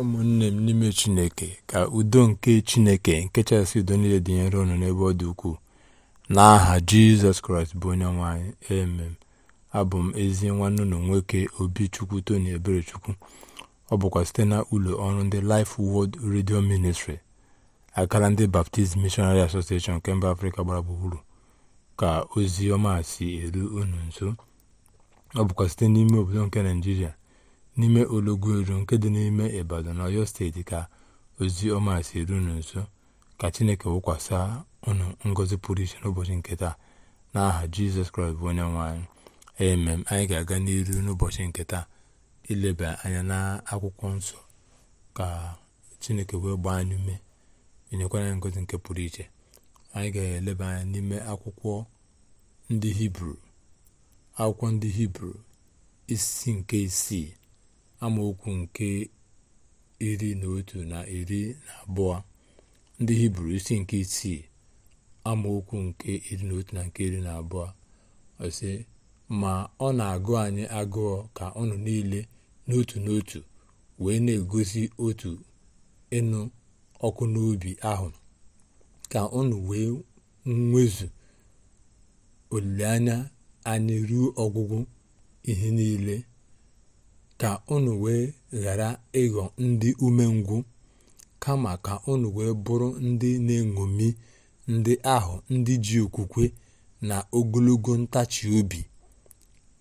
ụmụnne m n'ime chineke ka udo nke chineke nke chasị udo niile dị ụnụ n'ebe ọ dị ukwuu n'aha jizọs kraịst bụ onye nwanyị emem abụ m ezi nwanne ụlọ nwoke obi chukwu tony eberechukwu ọ bụkwa site na ụlọ ọrụ ndị Life Word redio ministri akara ndị Baptist Missionary Association nke mba afrịka gbara gburugburu ka ozi ọma si eru unu nso ọ bụkwa site n'ime obodo nke naijiria n'ime eru nke dị n'ime ibadan na ọyọ steeti ka ozi ọma si nso ka chineke wụkwasị unu ngọzi pụrụ iche n'ụbọchị nke taa n'aha jizọs kraịst bụ onye nwanyị anyị emem anyị ga-aga n'iru n'ụbọchị nke taa ileba anya n'akwụkwọ nsọ ka chineke wee gbaa anyị ume enyekwara anyị ngọzi nke pụrụ iche anyị ga-eleba anya n'ime akwụkwọ ndị hibru akwụkwọ ndị hibru isi nke isii amaokwu nke iri na otu na iri na abụọ ndị hibru isi nke isii amaokwu nke iri na otu na nke iri na abụọ ọsị ma ọ na-agụ anyị agụụ ka ọnụ niile n'otu n'otu wee na-egosi otu ịnụ ọkụ n'obi ahụ ka ọnụ wee nwezu olileanya anyị ruo ọgwụgwụ ihe niile ka unu wee ghara ịghọ ndị umengwụ kama ka unu wee bụrụ ndị na-eṅomi ndị ahụ ndị ji okwukwe na ogologo ntachi obi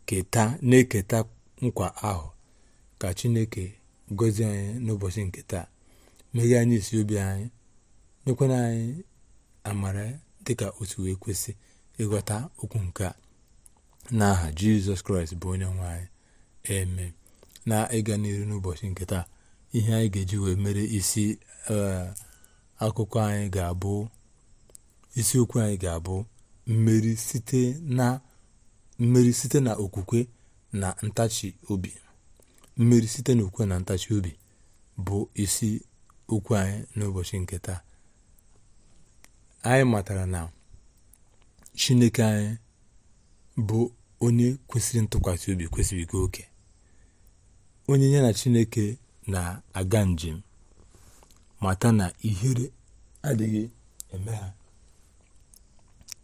keta na-eketa nkwa ahụ ka chineke gọzie anyị n'ụbọchị nke taa meghee anyị obi anyị nyekwana anyị amara dịka otu wee kwesị ịghọta okwu nke a n'aha jizọs kraịst bụ onye nwe anyị na ịga n'iru n'ụbọchị nke taa ihe anyị ga-eji wee mere isi eh, akụkọ anyị ga-abụ isiokwu anyị ga-abụ mmeri site na okwukwe na ntachi obi site na na ntachi obi bụ isi okwu anyị n'ụbọchị nke taa anyị matara na chineke anyị bụ onye kwesịrị ntụkwasị obi kwesịrị ike oke onye ya na chineke na-aga njem mata na ihere adịghị eme ha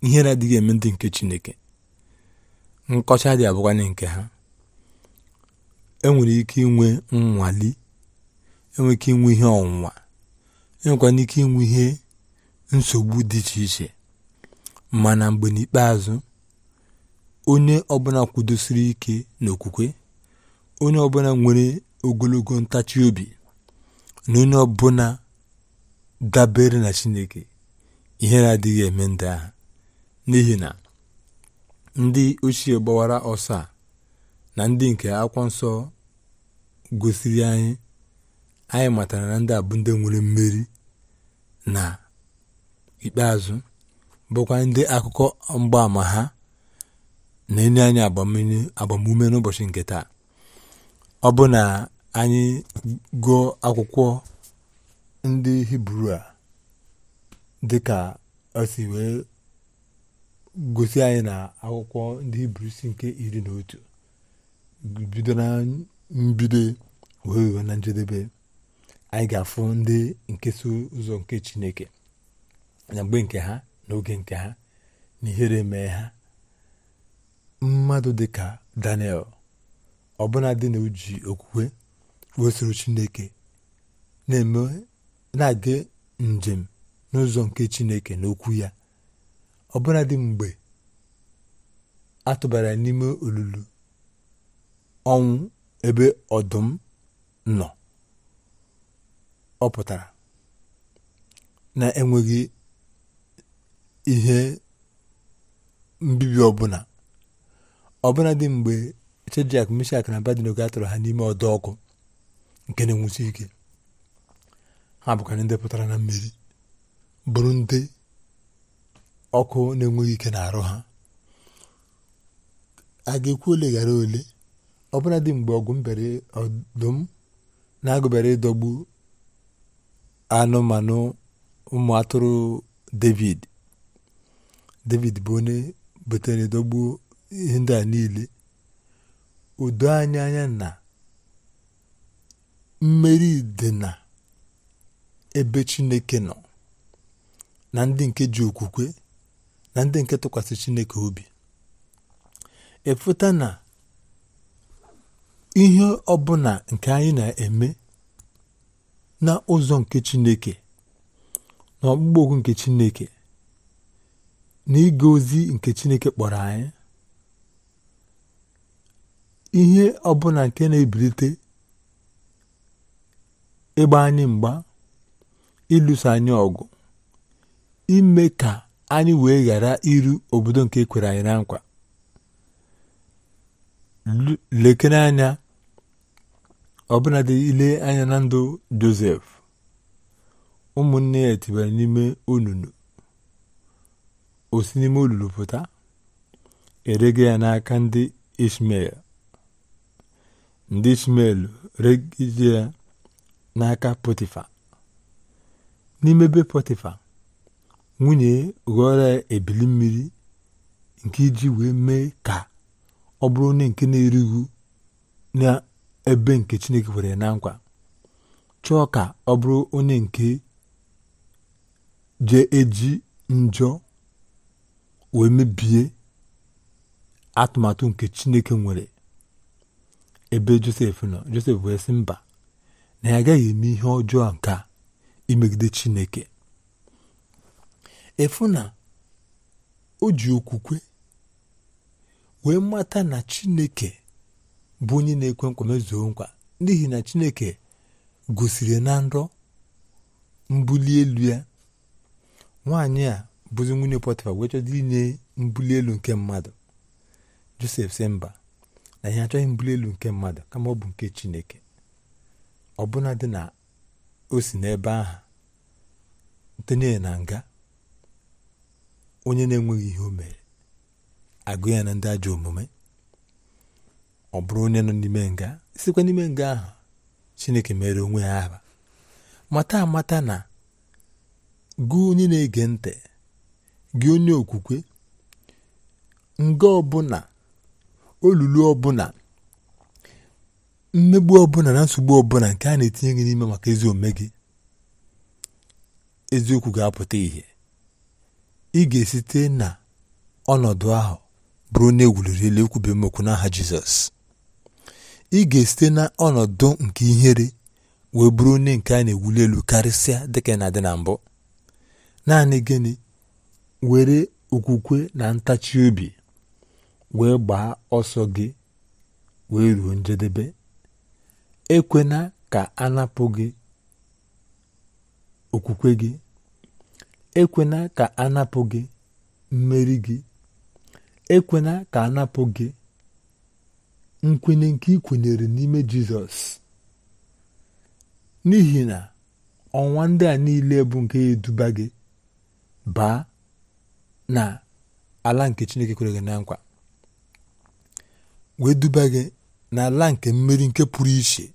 ihere adịghị eme ndị nke chineke nkọcha dị abụkwanye nke ha enwere ike inwe nnwali enwere ike inwe ihe ọnwụnwa enwekwana ike inwe ihe nsogbu dị iche iche mana mgbe n'ikpeazụ onye ọbụla kwudosiri ike n'okwukwe onye ọbụla nwere ogologo ntachi obi na onye ọbụla dabere na chineke ihe na adịghị eme ndị ahụ n'ihi na ndị ochie gbawara ọsọ a na ndị nke akwa nsọ gosiri anyị anyị matara na ndị abụ ndị nwere mmeri na ikpeazụ bụkwa ndị akụkọ mgbaama ha na-enye anyị agbamume n'ụbọchị nke taa Ọ bụ na anyị gụọ akwụkwọ ndị Hibru a dịka o si wee gosi anyị na akwụkwọ ndị Hibru si nke iri na otu bido na mbido wee wee na njedebe anyị ga-afụ ndị nke so ụzọ nke Chineke na mgbe nke ha n'oge nke ha na ihere mee ha mmadụ dịka Daniel dị na uji okwukwe wesoro chineke na-aga njem n'ụzọ nke chineke n'okwu okwu ya dị mgbe a tụbara n'ime olulu ọnwụ ebe ọdụm nọ ọ pụtara na-enweghị ihe mbibi ọbụla dị mgbe Shedrak Mishak na Abednego atụrụ ha n'ime ọdọ ọkụ nke na-enwusi ike ha bụkwara ndị pụtara na mmiri bụrụ ndị ọkụ na-enweghị ike na-arụ ha a ga-ekwu ole ghara ole ọbụla dị mgbe ọgụ mbere ọdụm na-agụbere ịdọgbu anụmanụ ụmụ atụrụ David David bụ onye butere ịdọgbu ihe a niile o anya anya na mmeri dị na ebe Chineke nọ na ndị nke ji okwukwe na ndị nke tụkwasị Chineke obi ịfụta e na ihe ọbụla nke anyị na-eme n'ụzọ nke Chineke na ọkpụkpọ okwu nke Chineke na ịga ozi nke Chineke kpọrọ anyị ihe ọbụla nke na-ebilite ịgba anyị mgba ịlụso anyị ọgụ ime ka anyị wee ghara iru obodo nke kwere anyị na nkwa lekere anya ọbụladị ile anya na ndụ josef ụmụnne ya etibere n'ime olulu osi n'ime olulu pụta erega ya n'aka ndị ishmael ndị ishmel regide ya n'aka potifa n'ime be potifa nwunye ghọrọ ebili mmiri nke iji wee mee ka ọ bụrụ onye nke na-erighị n'ebe nke chineke kwere na nkwa chọọ ka ọ bụrụ onye nke je eji njọ wee mebie atụmatụ nke chineke nwere ebe josef nọ josef wee mba na ya agaghị eme ihe ọjọọ nke a imegide chineke efu na o ji okwukwe wee mata na chineke bụ onye na-ekwe nkwa mezuo nkwa n'ihi na chineke gosiri na nrọ mbuli elu ya nwaanyị a bụzi nwunye pọtịfa wee inye mbuli elu nke mmadụ josef si mba na ihe achọghị mbụ elu nke mmadụ kama ọ bụ nke chineke bụla dị na o si n'ebe ahụ tenye na nga onye na-enweghị ihe o mere agụ ya na ndị ajọ omume ọ bụrụ onye nọ n'ime nga sikwa n'ime nga ahụ chineke mere onwe ya aha mata amata na gụ onye na-ege ntị gị onye okwukwe nga ọbụla olulu ọbụla mmegbu ọbụla na nsogbu ọbụla nke a na-etinye gị n'ime maka ezi eziokwu ga-apụta ihe ị ga-esite na ọnọdụ ahụ bụrụ na ewuliri elu ekwube n'aha jizọs ị ga-esite na ọnọdụ nke ihere wee bụrụ onye nke a na-ewuli elu karịsịa dịka na dị na mbụ naanị gịnị were okwukwe na ntachi obi wee gbaa ọsọ gị wee ruo njedebe ekwena ka a gị okwukwe gị ekwena ka a gị mmeri gị ekwena ka a napụ gị nkwenye nke ị kwenyere n'ime jizọs n'ihi na ọnwa ndị a niile bụ nke eduba gị baa na ala nke chineke kwere gị na nkwa wee duba gị n'ala nke mmeri nke pụrụ iche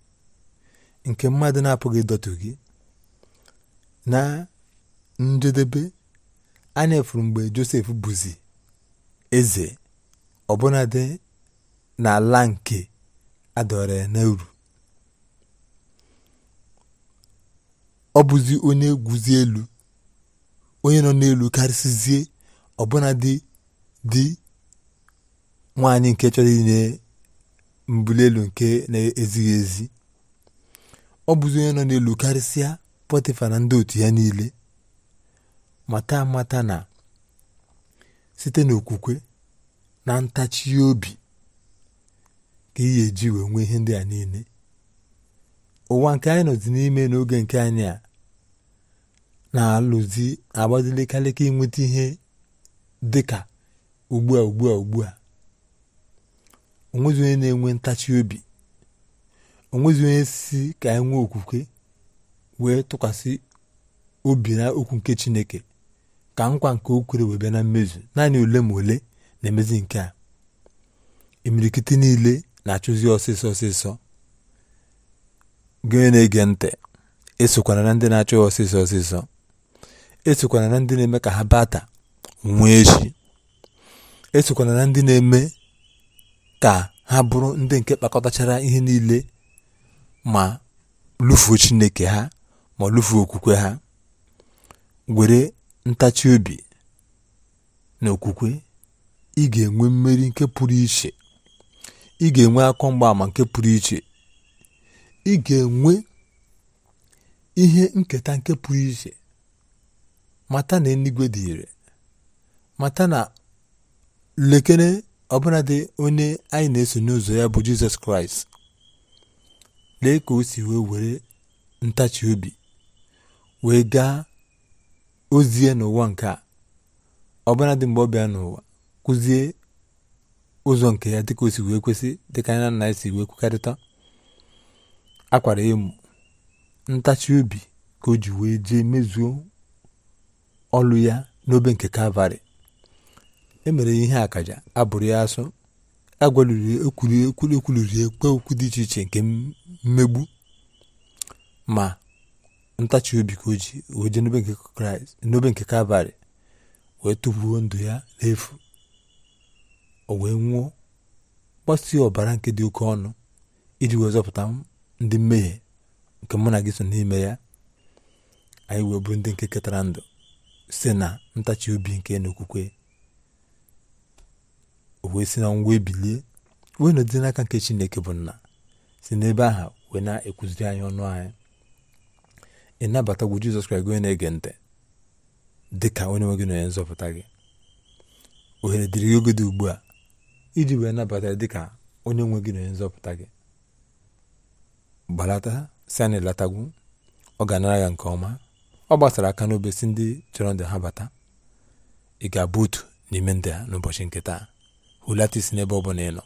nke mmadụ na-apụghị ịdọtụ gị na njedebe anya efuru mgbe josef bụzi eze ọbụnadị n'ala nke adọrọ ya n'uru ọ bụzi onye guzi elu onye nọ n'elu karịsịzie ọbụnadị dị nwaanyị nke chọrọ inye mbuli elu nke na-ezighị ezi ọ bụzi onye nọ n'elu karịsịa pọtịfa na ndị otu ya niile mata mata na site n'okwukwe na ntachi obi ka ị ga-eji wee nwee ihe ndị a niile ụwa nke anyị nọzi n'ime n'oge nke anyị a na-alụzi agbazilikalịka inweta ihe dị ka ugbu a ugbu a ugbu a onwezi onye na-enwe ntachi obi onwezi onye si ka anyị e nwee okwukwe wee tụkwasị obi na okwu nke chineke ka nkwa nke o wee bịa na mmezu naanị ole ma ole na-emezi nke a imirikiti niile na-achụzi ọsịsọ ọsịsọ gị na-ege ntị esokwana na ndị na-achụ ọsịsọ ọsịsọ esokwana na ndị na-eme ka ha bata nwa echi esokwana na ndị na-eme ka ha bụrụ ndị nke kpakọtachara ihe niile ma lụfuo Chineke ha ma lụfuo okwukwe ha were ntachi obi na okwukwe ị ga-enwe mmeri nke pụrụ iche ị ga-enwe akọ mgbaama nke pụrụ iche ị ga-enwe ihe nketa nke pụrụ iche mata na eluigwe dị ire mata na lekere ọbụladị onye anyị na-eso n'ụzọ ya bụ jizọs kraịst lee ka o si wee were ntachi obi wee gaa ozie n'ụwa nke a ọbụladị mgbe ọ bịa n'ụwa kụzie ụzọ nke ya dịka o si wee kwesị dịka anya na esi wee kwukarịta akwara emu ntachi obi ka o ji wee jee mezuo ọlụ ya n'obe nke kalvarị emere ihe akaja abụrụ ya asọ ekwuliri okwu dị iche iche nke mmegbu ma ntachi obi ka o ji oje n'obe nke kalvarị wee tụfuo ndụ ya n'efu o wee nwụọ gbasịa ọbara nke dị oke ọnụ iji wee zọpụta ndị mmehie nke mụ na gị so n'ime ya anyị wee bụ ndị nke ketara ndụ site na ntachi obi nke n'okwukwe o wee si na ngwa ebilie wee nọdị n'aka nke chineke bụ nna si n'ebe aha wee na-ekuziri anyị ọnụ anyị ịnabatagwu jizọs kraịst gị onye na-ege ntị dị ka onye nwe na onye nzọpụta gị ohere dịrị gị oge dị ugbu a iji wee nabata dị ka onye nwe gị na onye nzọpụta gị gbalata si anyị latagwu ọ ga-anara ya nke ọma ọ gbasara aka n'obe si ndị chọrọ ndị ha bata ị ga-abụ otu n'ime ndị a n'ụbọchị nke taa hulata isi n'ebe ọ bụla ị nọ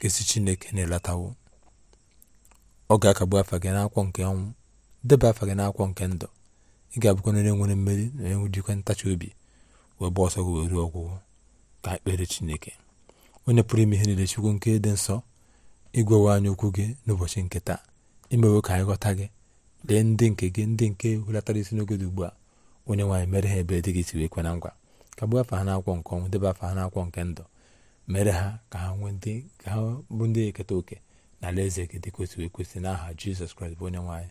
kesi chineke na-elatawo ọ ga-akagbu afa gị n'akwụkwọ nke ọnwụ deba afa gị n'akwụkwọ nke ndụ ị ga-abụkwa onye nwere mmeri na enwe dịkwa ntachi obi wee gba ọsọ gị wee ruo ọgwụgwọ ka ekpere chineke onye pụrụ ime ihe niile chukwu nke dị nsọ ịgwawa anya okwu gị n'ụbọchị nke taa imewe ka anyị ghọta gị lee ndị nke gị ndị nke hulatara isi n'oge dị ugbu a onye nwaanyị mere ha ebe dị gị si wee kwe na ngwa kagbuo afa ha n'akwụkwọ nke ọnwụ deba afa ha n'akwụkwọ nke ndụ mere ha ka ha nwee ka ha bụ ndị eketa oke na alaeze gị dị kwesịrị ekwesị n'aha jizọs kraịst bụ onye nwaanyị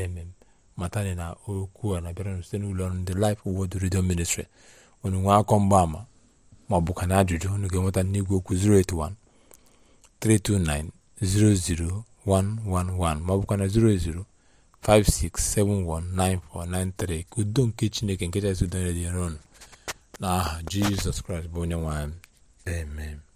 emem matani na okwu a na-abịara site n'ụlọ ọrụ ndị Life Word Radio Ministry unu nwee akọ mgbaama ma ọ na ajụjụ unu ga-enweta n'igwe okwu 081 329 00111 na 00 56719493 ka udo nke chineke nke chasị udo nyere dị n'ọnụ n'aha jizọs kraịst bụ onye nwaanyị Amen.